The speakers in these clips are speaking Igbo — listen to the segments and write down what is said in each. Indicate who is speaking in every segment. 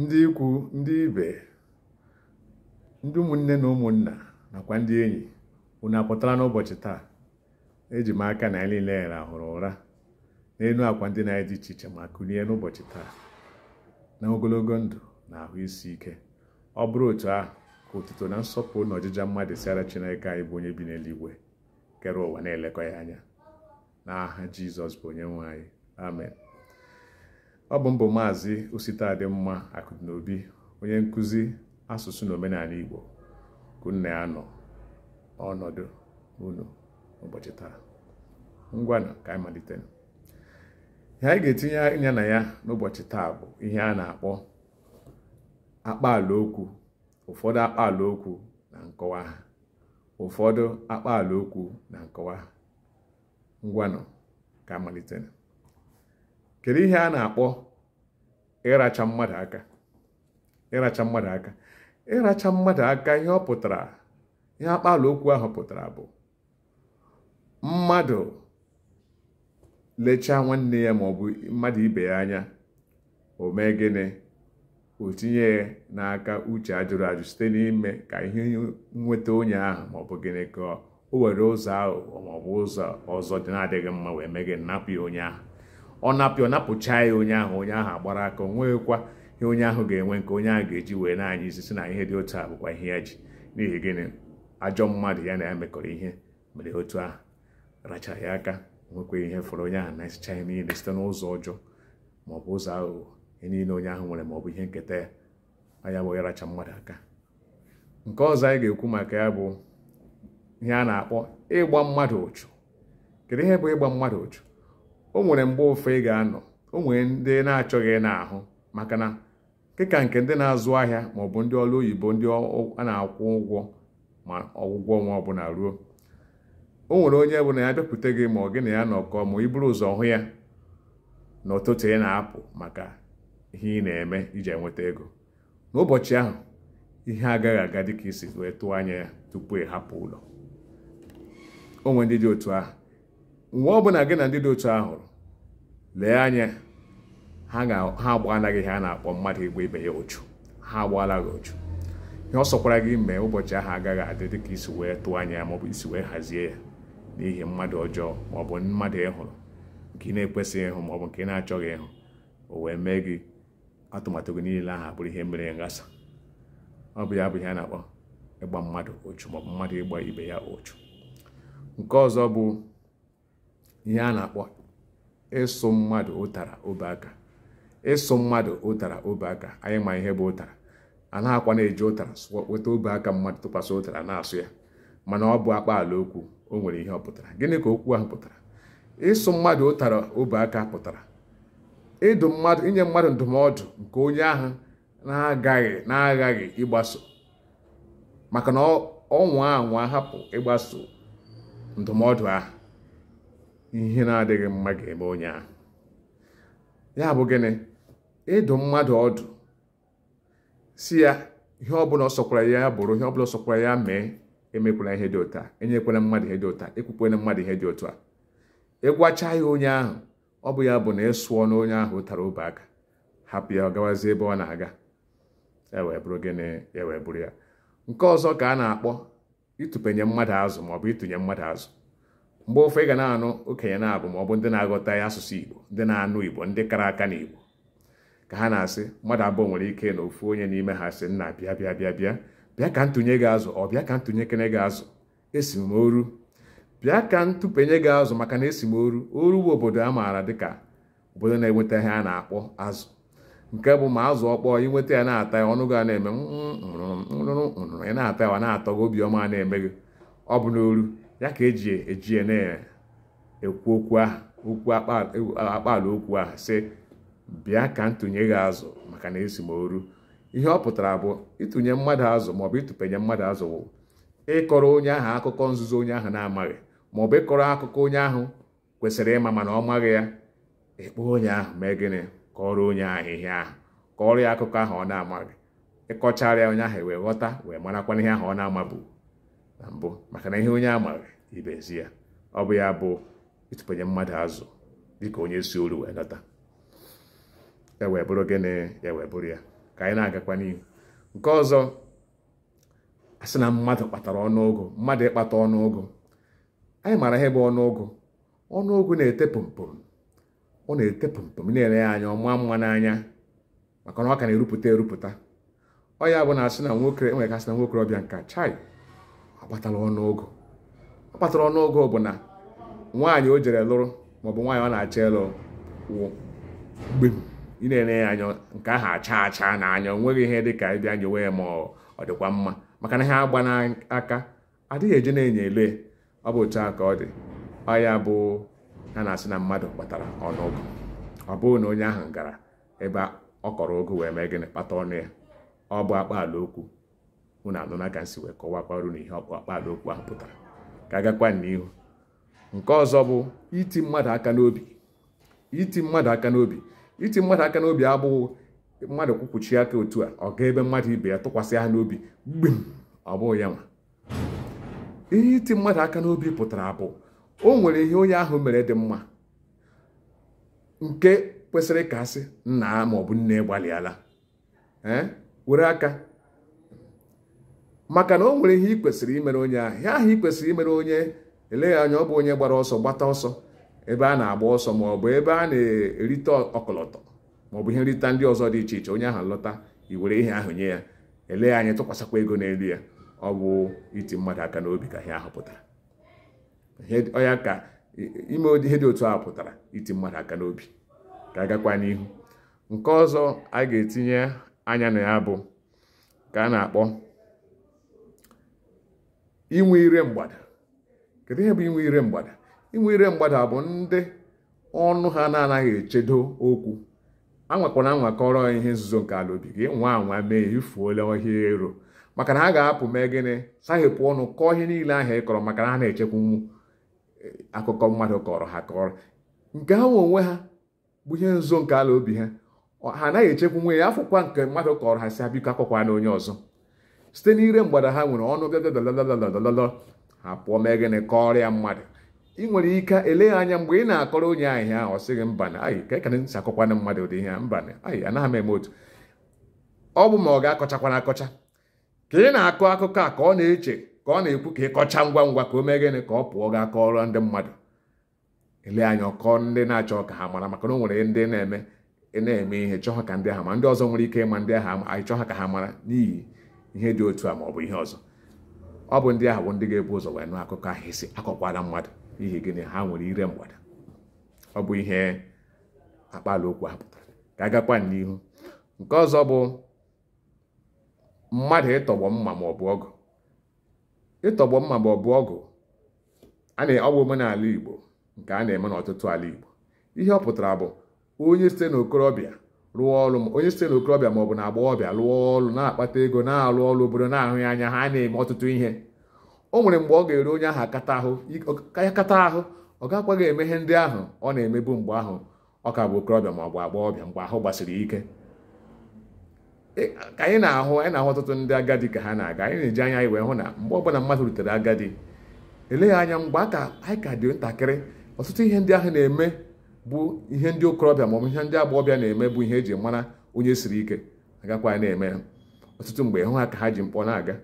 Speaker 1: ndị ikwu ndị ibe ndị ụmụnne na ụmụnna nakwa ndị enyi unu apụtara n'ụbọchị taa eji m aka na anyị niile rahụrụ ụra n'elu akwa ndị na-adị iche iche ma kulie n'ụbọchị taa na ogologo ndụ na ahụ isi ike ọ bụrụ otu ahụ ka otuto na nsọpụrụ na ọjịja mmadụ siara Chineke anyị bụ onye bi n'eluigwe kere ụwa na-elekọ ya anya n'aha Jizọs bụ onye nwe anyị amen ọ bụ mbụ maazị ositadịmma akụnaobi onye nkuzi asụsụ na omenala igbo kunna ya nọ ọnọdụ unu ụbọchị taa ngwanụ ka anyị malite ihe anyị ga-etinye anya na ya n'ụbọchị taa bụ ihe a na-akpọ akpaala okwu ụfọdụ akpaala okwu na nkọwa ha ụfọdụ ka kedu ihe a na-akpọ ịracha mmadụ aka ịracha mmadụ aka ịracha mmadụ aka ihe ọ pụtara ihe akpala okwu ahụ pụtara bụ mmadụ lechaa nwanne ya maọbụ mmadụ ibe ya anya o mee gịnị o tinye n'aka uche ajụrụ ajụ site n'ime ka ihe nweta onye ahụ maọbụ gịnị ka o were ụzọ ahụ maọbụ ụzọ ọzọ dị na-adịghị mma wee mee gị napụ ya onye ahụ ọ napịa ọ napụchaa ya onye ahụ onye ahụ agbara aka o nweghịkwa ihe onye ahụ ga-enwe nke onye ahụ ga-eji wee na-anya isi si na ihe dị otu a bụkwa ihe ya ji n'ihi gịnị ajọ mmadụ ya na ya mekọrọ ihe mere otu ahụ rachara ya aka nwekwa ihe fọrọ onye ahụ na-esicha ihe niile site n'ụzọ ọjọọ maọbụ ụzọ aghụghọ ihe niile onye ahụ nwere maọbụ ihe nketa ya anya bụ ịracha mmadụ aka nke ọzọ anyị ga-ekwu maka ya bụ ihe a na-akpọ ịgba mmadụ ụchụ kedu ihe bụ ịgba mmadụ ụchụ o nwere mgbe ofe ị ga-anọ o nwere ndị na-achọghị n'ahụ maka na dịka nke ndị na-azụ ahịa ma bụ ndị ọrụ oyibo ndị a na-akwụ ụgwọ ma ọgwụgwọ ọnwa ọbụla ruo o nwere onye bụ na ya bịakwute gị ma ọ gị na ya nọkọ ma ị bụrụ ụzọ hụ ya na ụtụtụ ị na-apụ maka ihe ị na-eme iji enweta ego n'ụbọchị ahụ ihe agaghị aga dịka isi wee tụọ anya ya tupu ị hapụ ụlọ onwe ndị dị otu ahụ gị na ndị dị otu ahụ hụrụ lee anya ha agbaghanaghị ihe a na-akpọ mmadụ ịgba ibe ya ochu ha agbaala gị ochu ihe ọ sọkwara gị mee ụbọchị ahụ agaghị adị dị ka isi wee tụọ anya ya maọbụ isi wee hazie ya n'ihi mmadụ ọjọọ maọbụ mmadụ ịhụrụ nke ị na-ekwesịghị ịhụ maọbụ nke ị na-achọghị ịhụ o wee mee gị atụmatụ gị niile ahụ bụrụ ihe mere ngasa ọ bụ ya bụ ihe a na-akpọ ịgba mmadụ ochu maọbụ mmadụ ịgba ibe ya ochu nke ọzọ bụ ihe a na-akpọ ịsụ mmadụ ụtara obeaka ịsụ mmadụ ụtara anyị ma ihe bụ ụtara a akwa na-eji ụtara weta obe aka mmadụ tụkwasị ụtara na-asụ ya mana ọ bụ akpaala okwu o nwere ihe ọ pụtara gịnị ka okwu ahụ pụtara ịsụ mmadụ ụtara obeaka pụtara ịdụ mmadụ inye mmadụ ndụmọdụ nke onye ahụ na-agaghị na-aghaghị ịgbaso maka na ọnwa anwa hapụ ịgbaso ndụmọdụ ahụ ihe na-adịghị mma ga-eme onye ahụ ya bụ gịnị ịdụ mmadụ ọdụ si ya ihe ọbụla ọ ya bụrụ ihe ọbụla ọsọkwara ya mee emekwala ihe dị ụta enyekwala mmadụ ihe dị ụta ekwukwala mmadụ ihe dị otu a ịgwacha ya onye ahụ ọ bụ ya bụ na ịsụọ na onye ahụ tara obe aka hapụ ya ọ gawazie ebe ọ na-aga ewee bụrụ gịnị ewee bụrụ ya nke ọzọ ka a na-akpọ ịtụpenye mmadụ azụ maọbụ ịtụnye mmadụ azụ mgbe ofe ị ga na-anụ okenye na-abụ ma ọ bụ ndị na-aghọta ya asụsụ igbo ndị na-anụ igbo ndị kara aka n'igbo ka ha na-asị mmadụ abụọ nwere ike na ofu onye n'ime ha sị nna bịa bịa bịa bịa bịa ka ntụnye gị azụ ọ bịa ka ntụnye kene gị azụ esi m oru bịa ka ntụpenye gị azụ maka na esi m oru oru bụ obodo a maara dịka obodo na-enweta ihe a na-akpọ azụ nke bụ ma azụ ọkpọọ inweta ya na-ata ya ọnụ gị na-eme nrụrụ nrụrụ ị na-ata ya wa na-atọ gị obiọma na-eme gị ọ bụ n'oru ya ka eji eji na-ekwu okwu aha okwu akpaala okwu ahụ sị bịa ka ntụnye gị azụ maka na esi m oru ihe ọ pụtara bụ ịtụnye mmadụ azụ maọbụ ịtụpenye mmadụ azụ bụ ịkọrọ onye ahụ akụkọ nzuzo onye ahụ na-amaghị maọbụ ịkọrọ akụkọ onye ahụ kwesịrị ịma mana ọ maghị ya ịkpọ onye ahụ mee gịnị kọrọ onye ahụ ihe ahụ kọrọ ya akụkọ ahụ ọ na-amaghị ịkọchara onye ahụ wee ghọta wee marakwana ihe ahụ ọ na-amabu na mbụ maka na ihe onye a amaghị ibezi ya ọ bụ ya bụ ịtụpanye mmadụ azụ dịka onye si olu wee dọta ya e wee bụrụ gịnị ya e wee bụrụ ya ka anyị na-agakwa n'ihu nke ọzọ asị na mmadụ kpatara ọnụụgụ mmadụ ịkpata ọnụụgụ anyị maara ihe bụ ọnụọgụ ọnụụgụ na-ete pụmpụm ọ na-ete pụmpụm na-ele ya anya ọma mma n'anya maka na ọ ka na-erupụta erupụta ọ ya bụ na asị na nwoke enwere ka asị na ọbịa nka chai akpatala ọnụọgụ akpatara ọnụọgụ bụ na nwaanyị o jere lụrụ maọbụ nwaanyị ọ na acha ịlụ wụ gbem ị na-enye ya anya nke ahụ acha acha na anyọ onweghị ihe dị ka ịbịa nyewe ya ma ọ dịkwa mma maka na ha agba n'aka adịghị eje na-enye ele ọ bụ otu a ka ọ dị ọ ya bụ ha na-asị na mmadụ kpatara ọnụụgụ ọ bụghị na onye ahụ gara ebe ọ kọrọ ogo wee mee gịnị kpata ọnụ ya ọ bụ akpa ala okwu unu anụ na ka nsi wee kọwakwaru na ihe ọkpakpado okwu ahụ pụtara ka agakwa n'ihu nke ọzọ bụ iti mmadụ aka n'obi iti mmadụ aka n'obi iti mmadụ aka n'obi abụghị mmadụ kwukwuchi aka otu a ọ gaa ebe mmadụ ibe ya tụkwasị ha n'obi gbim ọ bụghị ya nwa ihe iti mmadụ aka n'obi pụtara bụ o nwere ihe onye ahụ mere dị mma nke kwesịrị ka asị nna maọbụ nne gbalịala were aka maka na o nwere ihe ị kwesịrị imere onye ahụ ihe ahụ ị kwesịrị imere onye eleghị anya ọ bụ onye gbara ọsọ gbata ọsọ ebe a na-agba ọsọ ma ọ bụ ebe a na-erite ọkọlọtọ ma ọ bụ ihe nrita ndị ọzọ dị iche iche onye ahụ lọta i were ihe ahụ nye ya eleghị anya tụkwasịkwa ego n'elu ya ọ bụ iti mmadụ aka n'obi ka ihe ahụ pụtara ọya ka ime ihe dị otu ahụ pụtara iti mmadụ aka n'obi ka agakwa n'ihu nke ọzọ a ga-etinye anya na ya bụ ka a na-akpọ inwe ire mgbada kedu ihe bụ inwe ire mgbada inwe ire mgbada bụ ndị ọnụ ha na-anaghị echedo okwu anwakwana anwakọrọ ihe nzuzo nke ala obi gị nwa anwa mee ifuola ọhịa ero maka na ha ga-apụ mee gịnị sahepụ ọnụ kọọ ihe niile ahịa ị kọrọ maka na ha na-echekwanwu e, akụkọ mmadụ kọrọ ha kọrọ nke ahụ onwe ha bụ ihe nzuzo nke ala obi ha ha anaghị echekwa nwe ya afụkwa nke mmadụ kọrọ ha si ha biko akọkwa na onye ọzọ site n'ire mgbada ha nwere ọnụ bịa ha pụọ mee gịnị kọrịa mmadụ ị nwere ike ele anya mgbe ị na-akọrọ onye ahụ ihe ọ sịghị mba na ayị ka ekene nsi akọkwana mmadụ ụdị ihe mba na ayị anaghị m eme otu ọ bụ ma ọ ga-akọchakwana akọcha ka ị na-akọ akụkọ a ka ọ na-eche ka ọ na-ekwu ka ị kọcha ngwa ngwa ka o mee gịnị ka ọ pụọ gaa kọrọ ndị mmadụ ele anya ọkọ ndị na-achọ ka ha mara maka na o nwere ndị na-eme na-eme ihe chọọ ka ndị ma ndị ọzọ nwere ike ịma ndị ahụ anyị chọọ ha ka ha mara n'ihi ihe dị otu a ma ọ bụ ihe ọzọ ọ bụ ndị ahụ bụ ndị ga-ebu ụzọ wee nụ akụkọ ahụ isi akọkwala mmadụ n'ihi gịnị ha nwere ire mgbada ọ bụ ihe akpala okwu ha pụtara ka agakwa n'ihu nke ọzọ bụ mmadụ ịtọgbọ mma ma ọ bụ ọgụ ịtọgbọ mma ma ọ bụ ọgụ a na-ọgwụ omenala Igbo nke a na-eme n'ọtụtụ ala Igbo ihe ọ pụtara bụ onye site n'okorobịa rụọ ọrụ onye site n'okorobịa ma ọ bụ na rụọ ọrụ na-akpata ego na-alụ ọrụ obodo na-ahụ ya anya ha na-eme ọtụtụ ihe o nwere mgbe ọ ga ere onye ahụ akata ahụ ya kata ahụ ọ ga eme ihe ndị ahụ ọ na-emebu mgbe ahụ ọ ka bụ okorobịa ma ọ bụ mgbe ahụ gbasiri ike e, ka anyị na-ahụ anyị na-ahụ ọtụtụ ndị agadi ka ha na-aga anyị na-eji anya anyị wee hụ na mgbe ọbụla mmadụ rutere agadi eleghị anya mgbe anyị ka dị ntakịrị ọtụtụ ihe ndị ahụ na-eme bụ ihe ndị okorobịa maọbụ ihe ndị agbọghọbịa na-eme bụ ihe eji mara onye siri ike agakwa na-eme ya ọtụtụ mgbe hụ ha ka ha ji mkpọ na-aga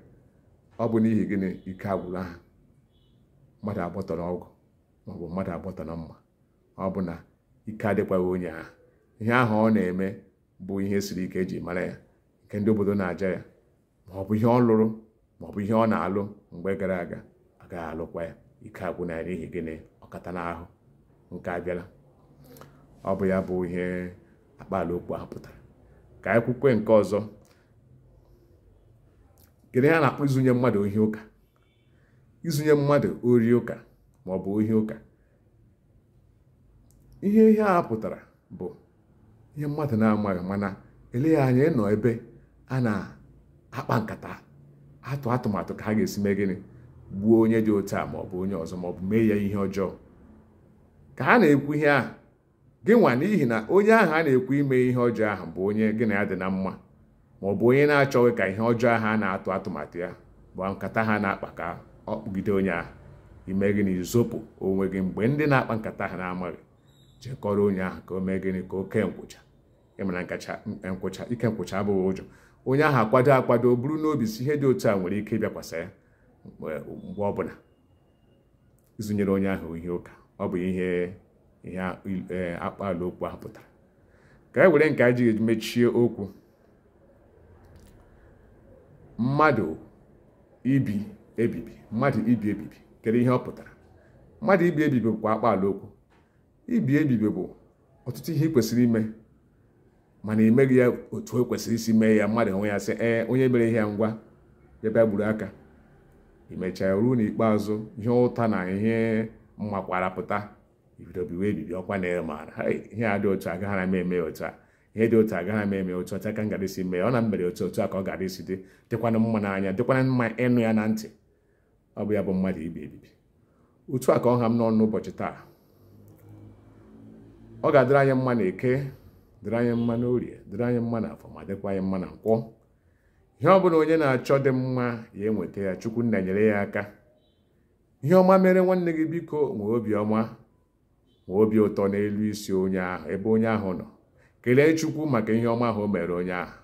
Speaker 1: ọ bụ n'ihi gịnị ike agwụla ha mmadụ agbọtọ na maọbụ mmadụ agbọtọ na mma ọ bụ na ike adịkwaghị onye ha ihe ahụ ọ na-eme bụ ihe siri ike eji mara ya nke ndị obodo na-aja ya maọbụ ihe ọ lụrụ maọbụ ihe ọ na-alụ mgbe gara aga agaghị alụkwa ya ike na ya n'ihi gịnị ọkata n'ahụ nke abịala ọ bụ ya bụ ihe akpaalaokwu ahụ pụtara ka anyị kwukwe nke ọzọ kedu ihe a na-akpọ izunye mmadụ ohi ụka izunye mmadụ ori ụka ma ọ bụ ohi ụka ihe ihe a pụtara bụ ihe mmadụ na-amaghị mana eleghị anya ịnọ ebe a na-akpa nkata atụ atụmatụ ka ha ga-esi mee gịnị gbuo onye dị otu a maọbụ bụ onye ọzọ ma ọ bụ mee ya ihe ọjọọ ka ha na-ekwu ihe ahụ gị nwa n'ihi na onye ahụ a na-ekwu ime ihe ọjọọ ahụ bụ onye gị na ya dị na mma ma ọ bụ onye na-achọghị ka ihe ọjọọ ahụ a na-atụ atụmatụ ya bụ nkata ha na-akpa ka ọ kpụgide onye ahụ ime gịnị izopụ onwe gị mgbe ndị na-akpa nkata ha na-amaghị jekọrọ onye ahụ ka o mee gịnị ka oke nkwụcha ịmara nkwụcha ike nkwụcha abụghị ụjọ onye ahụ akwado akwado bụrụ n'obi si ihe dị otu a nwere ike ịbịakwasa ya mgbe ọbụla ịzụnyere onye ahụ ihe ụka ọ bụ ihe ihe e, akpaala okwu ahụ pụtara ka e were nke a ji mechie okwu mmadụ ibi ebibi mmadụ ibi ebibi kedu ihe ọ pụtara mmadụ ibi ebibi bụkwa akpaala okwu ibi ebibi bụ ọtụtụ ihe ị kwesịrị ime mana emeghị ya otu o e kwesịrị isi mee ya mmadụ onwe ya sị ee onye mere ihe ya ngwa ya gburu aka i ruo n'ikpeazụ ihe ụta na ihe mmakwara pụta ibido biwe ebibi ọkwa na ya maara ihe a dị otu agaghara m eme otu a ihe dị otu agaghara m eme otu ọcha ka m gara isi mee ọ na mbere otu otu a ka ọ gara isi dị dịkwana mma n'anya dịkwana mma ịnụ ya na ntị ọ bụ ya bụ mmadụ ibi ebibi otu a ka ọ ha m n'ọnụ n'ụbọchị taa ọ ga-adịrị anyị mma na eke dịrị anyị mma orie dịrị anyị mma na afọ ma dịkwa anyị mma na nkwọ ihe ọ bụla onye na-achọ dị mma ya enweta ya chukwu nna nyere ya aka ihe ọma mere nwanne gị biko nwee obiọma obi ụtọ n'elu isi onye ahụ ebe onye ahụ nọ kelee chukwu maka ihe ọma ahụ mere onye ahụ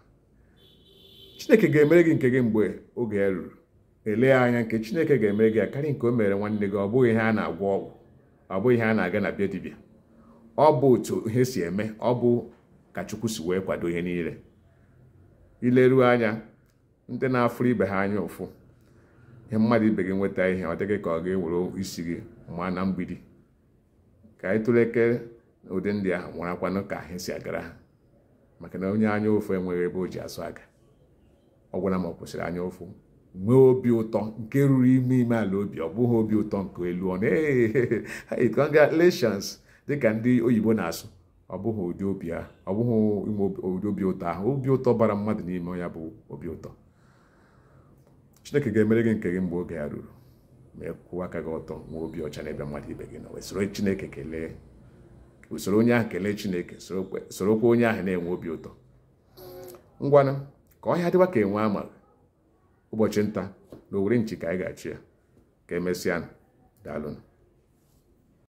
Speaker 1: chineke ga-emere gị nke gị mgbe oge ruru elee anya nke chineke ga-emere gị akarị nke o mere nwanne gị ọ bụghị ihe a na-agwọ ọgwụ ọ bụghị ihe a na-aga na bịa dibịa ọ bụ otu ihe si eme ọ bụ ka chukwu si wee kwado ihe niile ileruo anya ndị na-afụrụ ibe ha anya ụfụ ihe mmadụ ibe gị nweta ihe ọ dịghị ka ọ ga-ewere isi gị ma na mgbidi ka anyị tụleke ụdị ndị ahụ marakwanụ ka anyị si agara ha maka na onye anya ofu enweghị ebe o ji asụ aga ọ gwara m ọ kwụsịrị anya ụfụ nwee obi ụtọ nke ruru ime ime ala obi ọ bụghị obi ụtọ nke elu ọnụ ee congratulations dịka ndị oyibo na-asụ ọ bụghị ụdị obi a ọ bụghị inwe ụdị obi ụtọ ahụ obi ụtọ bara mmadụ n'ime ya bụ obi ụtọ chineke ga-emere gị nke gị mgbe oge ya ruru wee kwụwa aka gị ọtọ nwee obi ọcha n'ebe mmadụ ibe gị nọ wee soro chineke kelee usoro onye ahụ kelee chineke onye ahụ na-enwe obi ụtọ ngwanụ ka ọhịa dịwa ka enwe ama ụbọchị nta na owere nchi ka anyị ga-achị ya ka emesịa daalụnụ